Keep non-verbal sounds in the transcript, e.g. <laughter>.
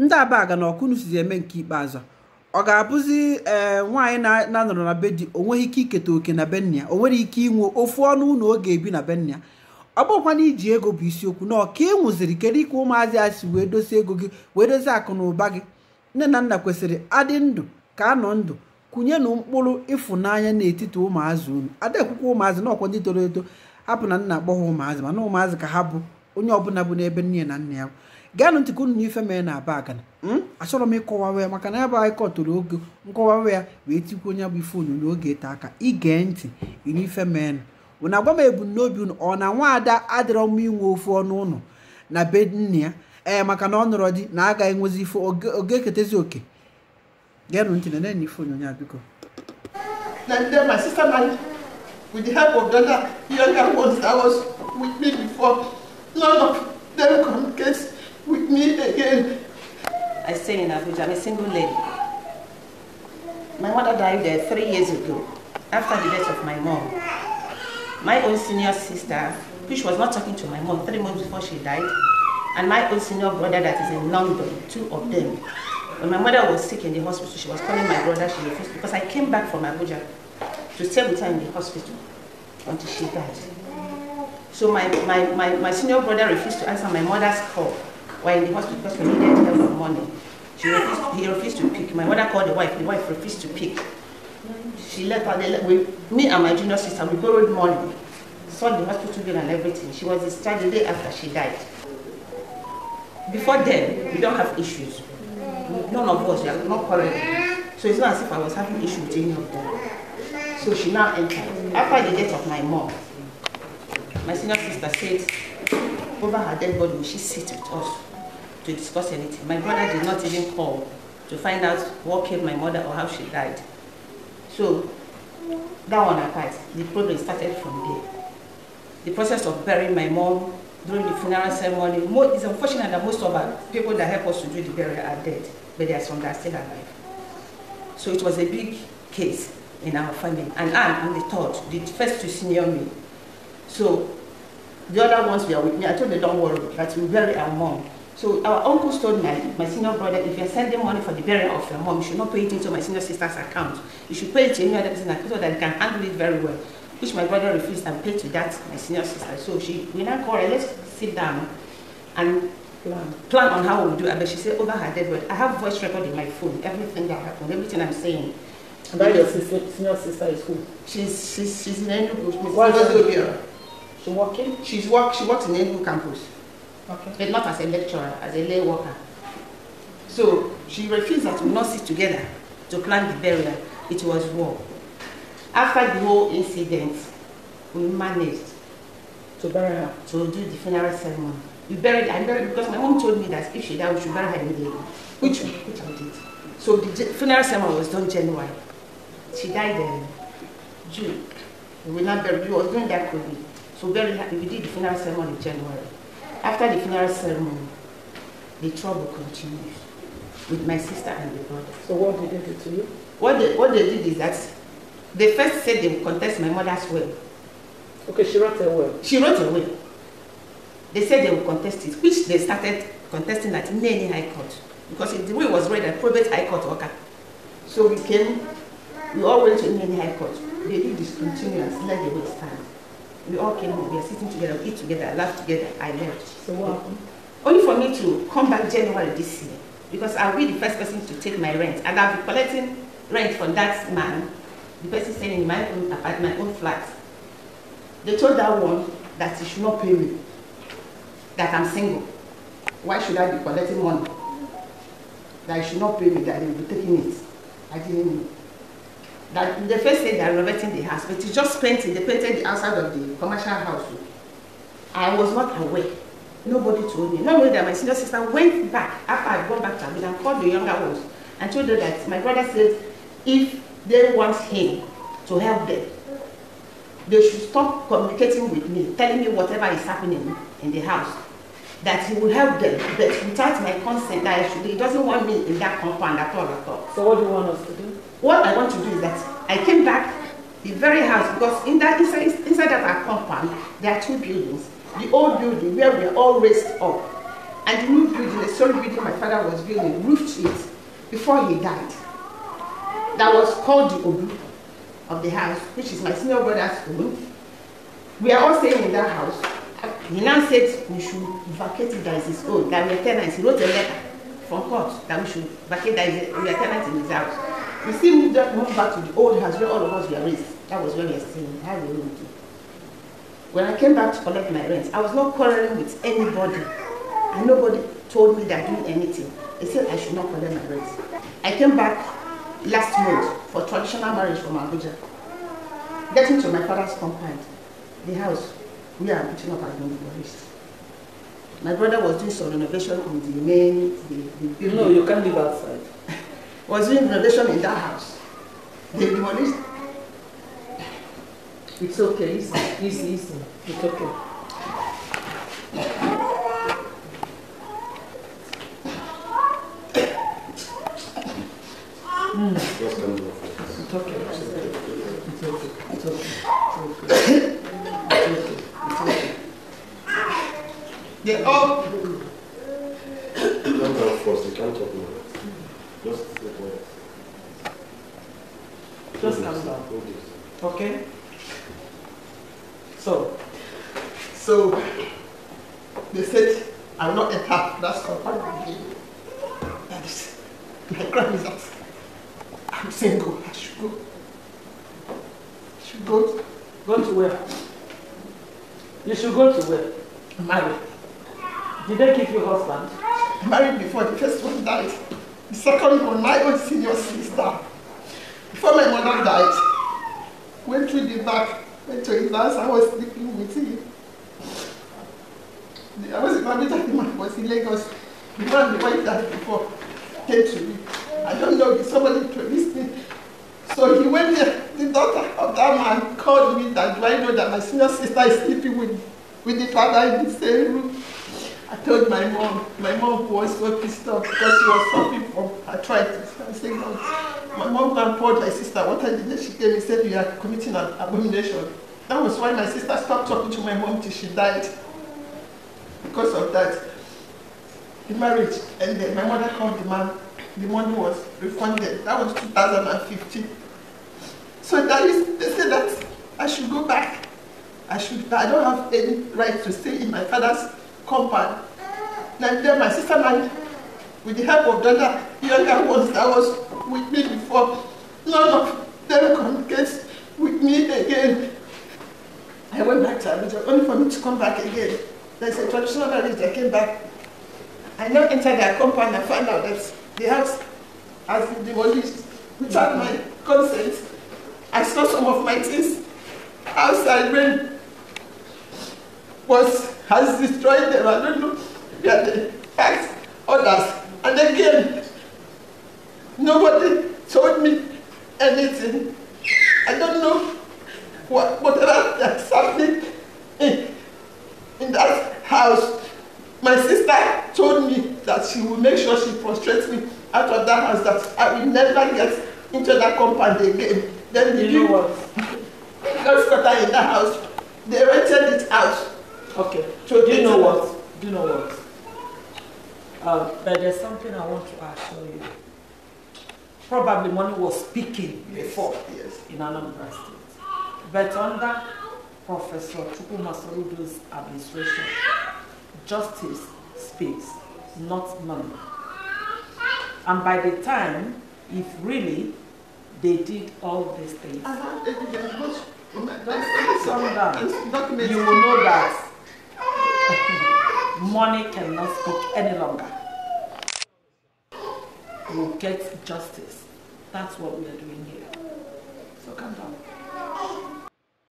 ndị abaga na ọkụnụ sizi eme nke ikpeazụ ọ ga-abụzi ee eh, nwaanyị na-anọrọ na be di o nweghị ike iketa oke na bennia o nwere ike inwe ofu ọnụ ụlọ oge ebi na bennia ọ na iji ego bụ isiokwu na ọka ị e kedu ike ụmụazị a si wee dozie ego gị wee dozi akụ na ụba gị nne na nna kwesịrị adị ndụ ka anọ ndụ kụnye na mkpụrụ ịfụnanya n'etiti ụmụazị unu adaekwukwa ụmụazị na ọkwa ndị toro eto hapụ na nna agbọghọ ụmụazị mana ụmụazị ka ha bụ onye ọbụla bụ n'ebe nne na nna ya gaanụ ntị ka unu na ife mee na aba agana hmm? achọrọ m ịkọwawa ya maka na ya bụ anyị kọtụrụ oge nkọwawa ya wee tikwu onye bụ ife onyonyo oge ete aka ige ntị inu ife mee na unu agwa m ebumnobi unu ọ na nwaada adịrọ mma inwe ofu ọnụ ụlọ na be nna ya ee maka na ọ nọrọ di na agaghị enwezi ife oge eketezi oke gaanụ ntị na na ife onyonyo a biko with the help of the other younger ones that was with me before none of them communicates with me again. I stay in Abuja. I'm a single lady. My mother died there three years ago, after the death of my mom. My own senior sister, which was not talking to my mom three months before she died, and my own senior brother that is in London, two of them. When my mother was sick in the hospital, she was calling my brother, she refused, because I came back from Abuja to stay with her in the hospital until she died. So my, my, my, my senior brother refused to answer my mother's call were in the hospital because we needed help for money. She refused, he refused to pick. My mother called the wife. The wife refused to pick. She left her. we, me and my junior sister, we borrowed money. Sold the hospital bill and everything. She was discharged the day after she died. Before then, we don't have issues. None of us, we are not quarreling. So it's not as if I was having issues with any of them. So she now entered. After the death of my mom, my senior sister said, over her dead body, will she sit with us? to discuss anything. My mother did not even call to find out what killed my mother or how she died. So that one apart, the problem started from there. The process of burying my mom during the funeral ceremony, it's unfortunate that most of our people that help us to do the burial are dead, but there are some that are still alive. So it was a big case in our family. And I am the third, the first to senior me. So the other ones were with me. I told them, don't worry, that we bury our mom. So our uncle told my, my senior brother, if you're sending money for the burial of your mom, you should not pay it into my senior sister's account. You should pay it to any other person so that can handle it very well. Which my brother refused and paid to that my senior sister. So she, we now call her, let's sit down and plan, plan on how we do it. But she said, over her dead body, I have voice record in my phone, everything that happened, everything I'm saying. And that your sister, senior sister is who? She's, she's, she's in Enugu. She's, she's working? She works in Enugu campus. Okay. But not as a lecturer, as a lay worker. So she refused that we not sit together to plan the burial. It was war. After the whole incident, we managed to bury her. To do the funeral ceremony. We buried her, buried because my mom told me that if she died, we should bury her immediately, which, which I did. So the funeral ceremony was done January. She died in June. We were not buried. We was doing that COVID. So buried her. We did the funeral ceremony in January. After the funeral ceremony, the trouble continued with my sister and the brother. So what did they do to you? What they, what they did is that they first said they would contest my mother's will. Okay, she wrote a will. She wrote a will. They said they would contest it, which they started contesting at many high court because the will was read at private high court worker. So we came, we all went to many high court. They did discontinuance, let the will stand. We all came home, we were sitting together, we eat together, laugh together, I left. So what Only for me to come back January this year, because I'll be the first person to take my rent, and I'll be collecting rent from that man, the person staying in my own apartment, my own flat. They told that one that he should not pay me, that I'm single. Why should I be collecting money? That he should not pay me, that he will be taking it. I didn't know that the first day they are renovating the house, but it's just painting. They painted the outside of the commercial house. I was not aware. Nobody told me. Not only that, my senior sister went back after I'd gone back to Abuja and called the younger ones and told them that my brother said if they want him to help them, they should stop communicating with me, telling me whatever is happening in the house that he will help them, but without my consent, I should, he doesn't want me in that compound at all, at all. So what do you want us to do? What I want to do is that I came back the very house, because in that inside, inside that compound, there are two buildings. The old building where we are all raised up, and the new building, the solid building my father was building, roofed it before he died. That was called the Obu of the house, which is my senior brother's room. We are all staying in that house. He now said we should vacate it as his own, that we are tenants. He wrote a letter from court that we should vacate that we are tenants in his house. We still moved, up, moved back to the old house where all of us were raised. That was when we were staying. How we do. When I came back to collect my rent, I was not quarreling with anybody. And nobody told me that doing anything. They said I should not collect my rent. I came back last month for traditional marriage from Abuja. Getting to my father's compound, the house we are reaching up and doing the My brother was doing some renovation on the main. The, the you know, you can't live outside. <laughs> was doing renovation in that house. They demolished. It's okay, easy, easy, easy. It's okay. They all. Don't come first, you can't talk now. Just Just calm down. Okay? So, so they said, I will not enter that compound That is, my crime is that I'm single. I should go. I should go. Go to where? You should go to where? Marry. Did they keep your husband? Married before the first one died. The second one, my own senior sister. Before my mother died, went through the back, went to his house, I was sleeping with him. I was in Babita, the man was in Lagos. The man, the wife died before, came to me. I don't know if somebody introduced me. So he went there, the daughter of that man called me that, do I know that my senior sister is sleeping with, with the father in the same room? I told my mom, my mom was so pissed off because she was suffering from arthritis. I said, no. My mom told my sister, what I did, she came and said, you are committing an abomination. That was why my sister stopped talking to my mom till she died. Because of that, the marriage ended. My mother called the man. The money was refunded. That was 2015. So that is, they said that I should go back. I should, I don't have any right to stay in my father's compound. And then my sister and with the help of the other younger ones that was with me before, none of them communicates with me again. I went back to Abuja only for me to come back again. There's a traditional marriage that came back. I now entered their compound and found out that the house has been demolished without my consent. I saw some of my things outside when was has destroyed them. I don't know. Yeah, the facts, others. And again, nobody told me anything. I don't know what, whatever that's happening in, in that house. My sister told me that she will make sure she frustrates me out of that house, that I will never get into that compound again. Then the you know what? Because <laughs> in that house, they rented it out. Okay. So do you know what? Do you know what? Um, but there's something I want to assure you. Probably money was speaking yes, before yes. in Anambra State. But under Professor Chukuma Soludo's administration, justice speaks, not money. And by the time, if really they did all these things, uh -huh. calm down. You will know that Money cannot speak any longer. We'll get justice. That's what we are doing here. So calm down.